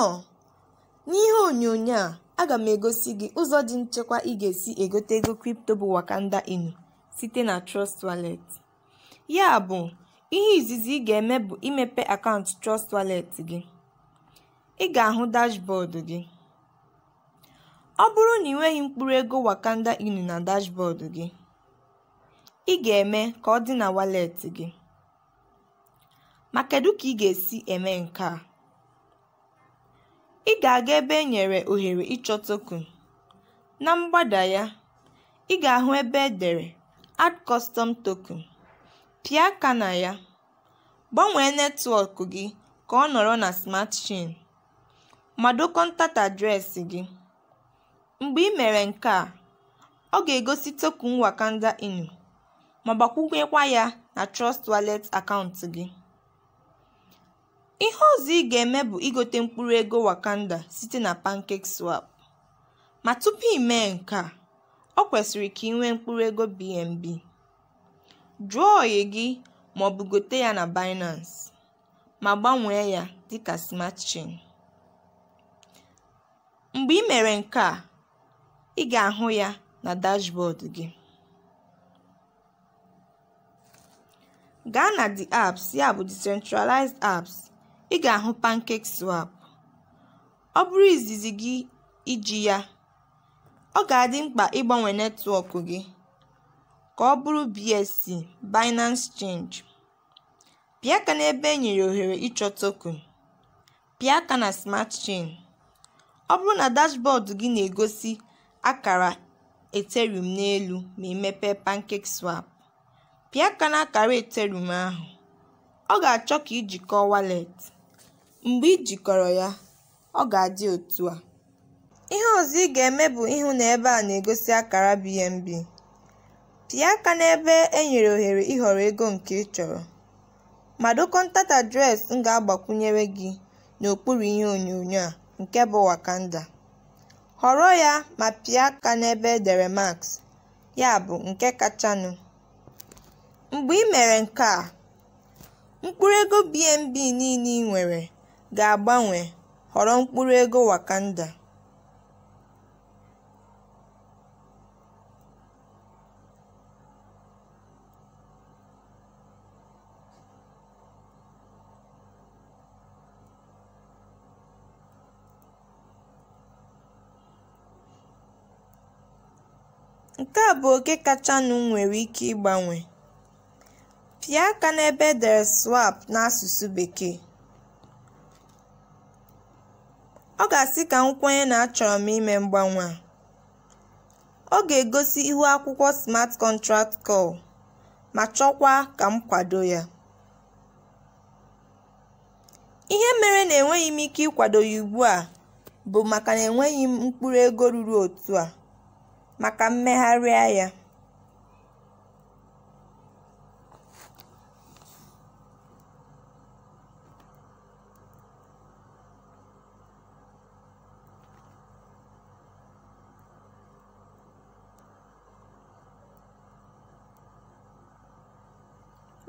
Now, n'ihe onyonyo a, aga m egosi gị ụzọ dị nchekwa ị ga-esi egote ego kripto bụ Wakanda Inu site na Trust Wallet. Ya bụ, ihe izizi ị ga-eme bụ imepe akaụntụ Trust Wallet gị. Ị ga-ahụ dashbọọdụ gị. Ọ bụrụ na ị nweghị mkpụrụ ego Wakanda Inu na dashbọọdụ gị, ị ga-eme ka ọ dị na walet gị. Ma kedu ka ị ga-esi eme nke a? ị ga-aga ebe e nyere ohere ịchọ token. Na mgbada ya, ị ga-ahụ ebe e dere "Add Custom Token", pịa aka na ya, gbanwee netwọk gị ka ọ nọrọ na Smart Chain, ma kọntat adreesị gị. Mgbe ị mere nke a, ọ ga-egosi token Wakanda Inu ma gbakwunyekwa ya na Trust Wallet akaụntụ gị. Ihe ọzọ ị ga-eme bụ igote mkpụrụ ego Wakanda site na swap Ma tupu i nke a, o kwesịrị ka i nwee mkpụrụ ego BNB. Jụọ oyi gị ma maọbụ gote ya na Binance, ma gbanwee ya dịka Smart Chain. Mgbe ị mere nke a, ị ga-ahụ ya na dashboard gị. Gaa na The Apps ya bụ (Decentralized Apps) ị ga-ahụ swap Ọ bụrụ izizi gị iji ya, ọ ga-adị mkpa ịgbanwe netwọk gị ka ọ bụrụ BSC (Binance Change). Pịa aka n'ebe e nyere ohere ịchọ token. Pịa aka na Smart Chain. Ọ bụrụ na dashbọọdụ gị na-egosi akara Ethereum n'elu ma emepe pankek swap pịa aka n'akara Ethereum ahụ. Ọ ga-achọ ka iji kọọ wallet. Mgbe i jikọrọ ya, ọ ga-adị otu a. Ihe ọzọ ị ga-eme bụ ịhụ na ebe a na-egosi akara BNB. Pịa aka n'ebe e nyere ohere ịhọrọ ego nke ị chọrọ, ma dee ntata adreesị m ga-agbakwunyere gị n'okpuru ihe onyonyo a nke bụ Wakanda. Họrọ ya ma pịa aka n'ebe edere dere "Max", ya bụ nke kachanụ. Mgbe ị mere nke a, mkpụrụ ego BNB niile ị nwere ga-agbanwe họrọ mkpụrụ ego Wakanda. Nke a bụ oke kachanụ nwere ike ịgbanwe. Pịa aka n'ebe edere 'swap' n'asụsụ Bekee. ga-asị ka m kwenye na achọrọ m ime mgbanwe a. Ọ ga-egosi ihu akwụkwọ Smart Contract Call ma chọkwa ka m kwado ya. Ihe mere na enweghị m ike ịkwado ya ugbu a bụ maka na enweghị m mkpụrụ ego ruru otu a maka mmegharịa ya.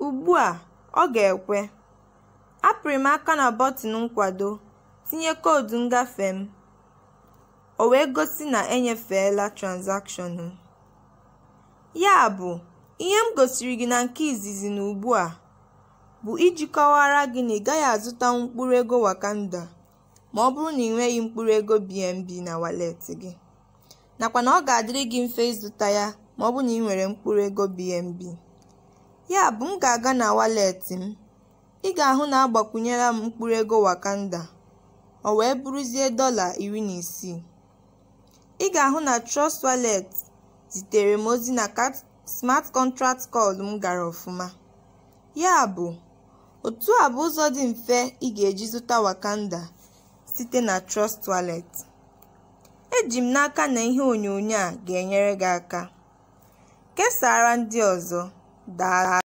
Ugbu a ọ ga-ekwe. Apịrị m aka na bọtịnụ nkwado, tinye koodu ngafe m, o wee gosi na enyefeela transakshọnụ m. Yabụ, ihe m gosiri gị na nke izizi na ugbu a bụ iji kọwara gị na ị gaghị azụtanwu ego Wakanda bụrụ na ị mkpụrụ ego BNB na waleetị gị, nakwa na ọ ga-adịrị gị mfe ịzụta ya ma maọbụ na ị nwere mkpụrụ ego BNB. Yabụ m ga-aga na walet m, ị ga-ahụ na agbakwunyela m mkpụrụ ego Wakanda, o wee bụrụzie dọla isii Ị ga-ahụ na Trust Wallet zitere m ozi na smart contract call m gara ọfụma, yabụ otu a bụ ụzọ dị mfe ị ga-eji zụta Wakanda site na Trust Wallet. Eji m n'aka na ihe onyonyo a ga-enyere gị aka. kesara ndị ọzọ. daa.